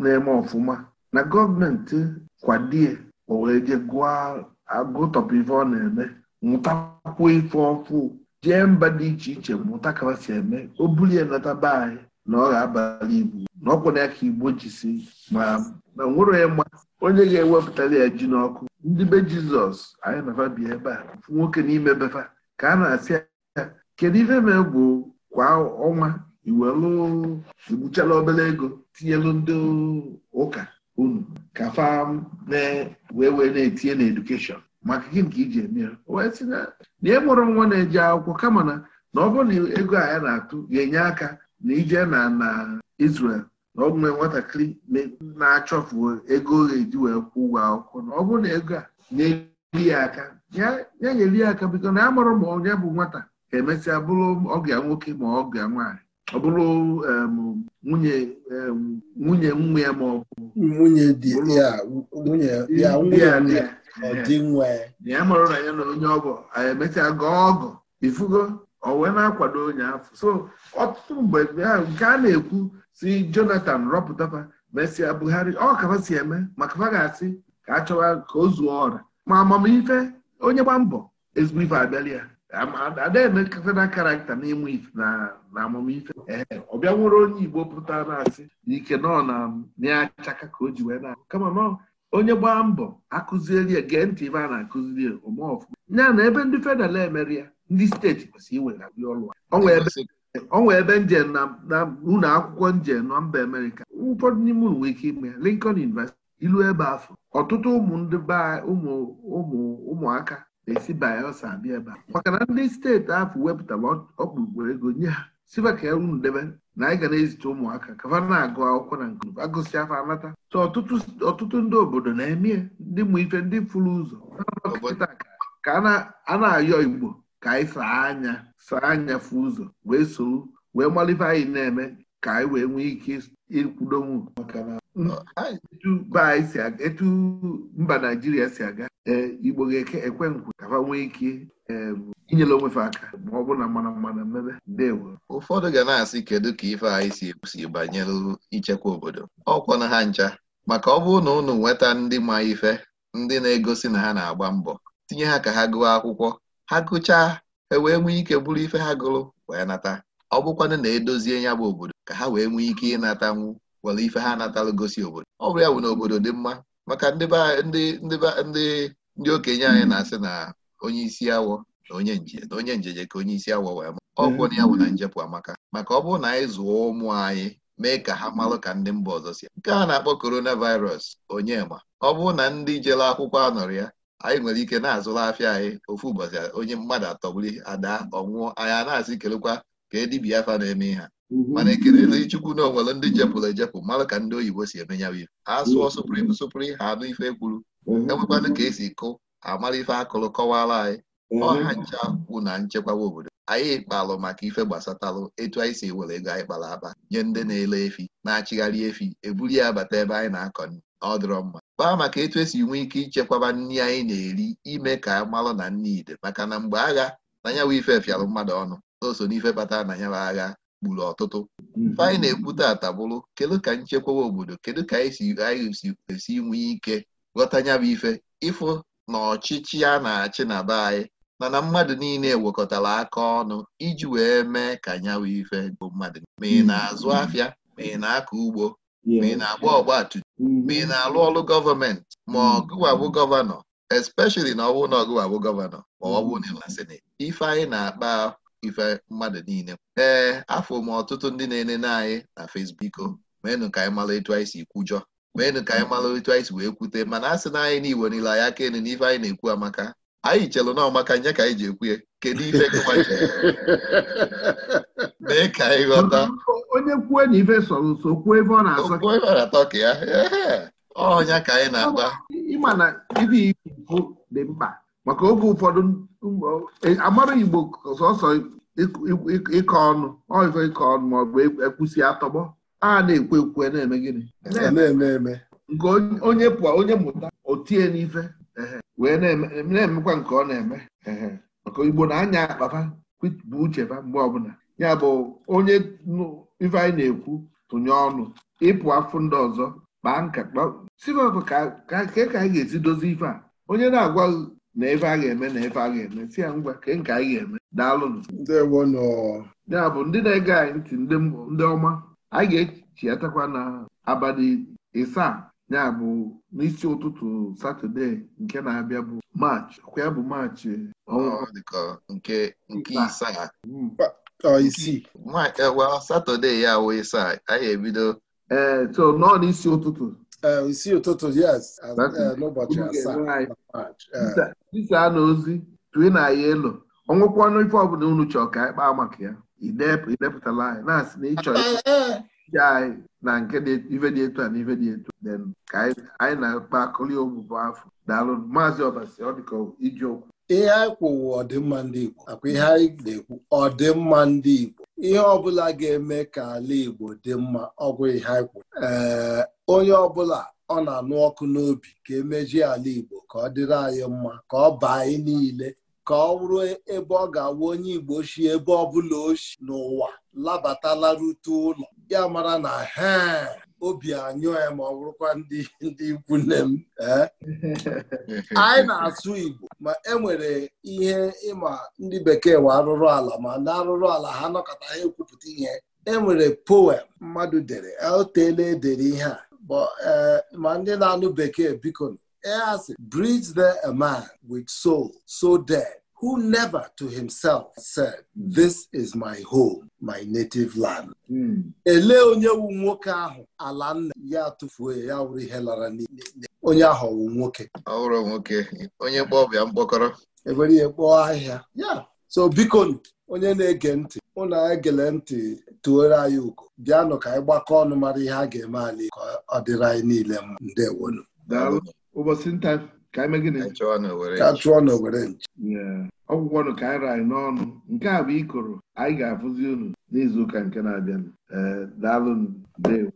na-eme ọfụma na gọọmenti kwadie o wee je gụọ agụtọpụ ife ọ na-eme nwụtakwuo ife ọfụ jee mba dị iche iche mụta ka si eme o bulie nlọta be anyị na ọ ga-abalị igbo na ọkwụ na ya ka igbo jisi ma na nwere ya mma onye ga-ewepụtara ya ji n'ọkụ ndị be jizọs anyị na bi ebe a nwoke n'ime befa ka a na-asị ya kedu ife ma egwu kwa ọnwa iwelu egbuchala obere ego tinyelu ndị ụka unu ka fa na wee wee na-etinye na edukeshọn maka gị nke iji eme ya wee si na ị e mụrụ nwa na-eji akwụkwọ kama na na ọ bụrụ na ego a ya na-atụ ga-enye aka na ije na na Israel na ọ nwee nwatakịrị na-achọfu ego ọ ga-eji wee kwụ ụgwọ akwụkwọ na ọ bụrụ na ego a na-eri ya aka ya nyeri ya aka biko na amụrụ ma onye bụ nwata ga-emesịa bụrụ ọbịa nwoke ma ọbịa nwaanyị ọ bụrụ nwunye nwunye nwa ya ma ọ bụ nwunye ya ọdị ya marụ na ya na onye ọgọ emechaa gụọ ọgụ ifugo o wee na-akwado onye afọ so ọtụtụ mgbe nke a na-ekwu si Jonathan rọpụtapa mesịa Buhari ọ kafa si eme maka fa ga-asị ka a chọwa ka o zuo ọra ma amamife onye gba mbọ ezigbo ife abịala ya adaeme na karakta n'ịmụ ife na amamife ee ọ bịa nwere onye Igbo pụta na-asị Ike nọ na ya achaka ka o ji wee na kama nọ onye gbaa mbọ akụzieri ya gee ntị ibe a na-akụziri ya ome ọfụma ya na ebe ndị federal emere ya ndị steeti kwesịrị iwegharị ọrụ onwe ebe njem na ụlọ akwụkwọ njem na mba amerịka ụfọdụ n'ime ụlọ nwere ike ime ya Lincoln University ilu ebe afọ ọtụtụ ụmụ ndị ụmụ ụmụaka na-esi Bayelsa abịa ebe a maka na ndị steeti ahụ wepụtara ọkpụkpụ ego nye ha siba ka unu debe na anyị ga na-ezite ụmụaka kafa na-agụ akwụkwọ na nke agụsị afọ anata so ọtụtụ ndị obodo na-eme ndị mụ ife ndị furu ụzọ ka a na-ayọ igbo ka anyị saa anya saa anya fụ ụzọ wee soro wee malife anyị na-eme ka anyị wee nwee ike ikwudonwu. maka etu mba anyị si aga etu mba naijiria si aga ee, igbo ga ekwe nkwe ka nwee ike e, inyere onwefe aka ma ọ bụrụ na mmanụ mmanụ mmebe ndewo ụfọdụ ga na-asị kedu ka ife anyị si ekwusi banyere ichekwa obodo Ọ na ha ncha maka ọ bụrụ na unu nweta ndị ma ife ndị na-egosi na ha na-agba mbọ tinye ha ka ha gụọ akwụkwọ ha gụchaa e wee nwee ike bụrụ ife ha gụrụ wee nata ọ bụkwanụ na edozie ya bụ obodo ka ha wee nwee ike ịnata nwu. nwere ife ha natara gosi obodo ọ bụrụ ya bụ na obodo dị mma maka ndị okenye anyị na-asị na onye isi awọ na onye nje na onye njeje ka onye isi awọ wee ma ọgwụ mm-hmm. na ya bụ na njepụ amaka maka ọ bụrụ na anyị zụọ ụmụ anyị mee ka ha marụ ka ndị mba ọzọ si nke a na-akpọ coronavirus onye ma ọ bụrụ na ndị jere akwụkwọ anọrọ ya anyị nwere ike na-azụrụ afịa anyị ofu ụbọchị onye mmadụ atọgbuli ada ọnwụọ anyị a na-asị kelekwa ka e dibịa afa na-eme ha Mhm. mana ekelela ichukwu na onwere ndị jepụrụ ejepụ mara ka ndị oyibo si eme ya ha sụọ mhm. suprim ha anụ ife kwuru mhm. enwekwana ka esi kụ amara ife akụrụ kọwara anyị ọha ncha kwụ na nchekwawa obodo anyị kpalụ maka ife gbasatalụ etu anyị si ewere ego anyị kpara akpa nye ndị na-ele efi na-achịgharị efi eburu ya abata ebe anyị na-akọ ọ dịrọ mma kpaa maka etu esi nwee ike ichekwaba nri anyị na-eri ime ka amalụ na nri ide maka na mgbe agha na nyawa ife fịarụ mmadụ ọnụ so n'ife kpatara na nyawa agha gburu ọtụtụ anyị mm-hmm. na ekwute taata bụrụ kedu ka nchekwawa obodo kedu ka anyị si esi nwee ike ghọta ya bụ ife ịfụ na ọchịchị a na-achị na be anyị mana mmadụ niile wekọtara aka ọnụ iji wee mee ka nyawa ife bụ mmadụ ma ị mm-hmm. na-azụ afịa ma ị na-akọ ugbo ma ị na-agba ọgbatumtum mm-hmm. ma ị na-alụ ọrụ gọọmenti ma ọgụwabụ gọvanọ especially na ọ bụrụ na ọgụwabụ gọvanọ ma ọ bụ na seneti ife anyị na-akpa ife mmadụ niile ee afọ m ọtụtụ ndị na-enene anyị na Facebook meenụ ka anyị mara etu anyị si kwujọ meenụ ka anyị mara etu anyị si wee kwute mana a sị na anyị na niile anyị aka enu na anyị na-ekwu amaka anyị chelụ na ọmaka nye ka anyị ji ekwu ya kedu ife mee ka anyị ghọta onye kwue na ife sọrọ nso kwuo ebe ọ na-atọ ebe ọ na-azọ ka ya ọnya ka anyị na-agba ịma na ife ikwu dị mkpa maka oge ụfọdụ um, amara Igbo sọsọ ịkọ ọnụ ọzọ ịkọ ọnụ ma ọ bụ e, ekwusi atọgbọ a na-ekwe ekwe na-eme gịnị nke onye pụọ onye mụta otie n'ife wee na-emekwa nke ọ na-eme maka Igbo na-anya akpafa bụ ucheba mgbe ọbụla ya bụ onye ife anyị na-ekwu tụnye ọnụ ịpụ afụ ndị ọzọ kpaa nkata sivọkụ ka ka anyị ga-esi dozi ife a onye na-agwa na ebe a ga-eme na ebe a ga-eme si ya ngwa ka nke anyị ga-eme daalụnụ ya bụ ndị na-ege anyị ntị ndị ọma anyị ga echichatakwa na abalị ịsaa ya bụ n'isi ụtụtụ satọde nke na-abịa bụ maachị ọkwa ya bụ maachị nke hmm. e, satọde ya wụ ịsaa anyị ebido ee eh, so nọọ n'isi ụtụtụ isi eh, ụtụtụ yes eh, n'ụbọchị asaa tisa eh. na ozi tue na ya elu ọnwụkwa ọnụ ife ọbụla unu chọọ ka anyị kpaa maka ya idepụtala anyị na-asị na ịchọ ije anyị na nke ife dị etu a na ife dị etu ka anyị na-akpakọli akpa ogbụbụ afọ daalụ maazị ọbasi ọ dịka iji okwu ihe anyị kwụwụ ọdịmma ndị Igbo akwa ihe anyị na-ekwu ọdịmma ndị Igbo ihe ọbụla ga-eme ka ala Igbo dị mma ọgwụ ihe anyị kwụ onye ọbụla ọ na-anụ ọkụ n'obi ka emejie ala Igbo ka ọ dịrị anyị mma ka ọ baa anyị niile ka ọ bụrụ ebe ọ ga-awụ onye Igbo shi ebe ọbụla oshi n'ụwa labatalarutu ụlọ ya mara na ha obi anyụ ya ma ọ bụrụkwa ndị ndị ikwu nne m anyị na-asụ Igbo ma enwere ihe ịma ndị bekee wa arụrụ ala ma ndị arụrụ ala ha nọkọta ha ekwupụta ihe enwere poem mmadụ dere o teela edere ihe a Uh, ma ndị na-anụ bekee biko asị bridge there a man with soul so dead who never to himself said this is my home my native land. Hmm. elee onye wu nwoke ahụ ala nna ya tụfuo ya wụrụ ihe lara n'ile onye ahụ ọwụ nwoke ọhụrụ nwoke onye kpọọ ọbịa mkpọkọrọ ewere ihe kpọọ ahịhịa ya so biko onye na-ege ntị ụna egele ntị tuoro anyị ugo bịanụ ka anyị gbakọ ọnụ mara ihe a ga-eme anyị ka ọ dịrị anyị niile mma ndewonu ka chụọ na owere nche ọgwụgwọnụ ka anyị ranyị n'ọnụ nke a bụ ikoro anyị ga-afụzi unu n'izuụka nke na-abịanụ eh, daalụ ndewo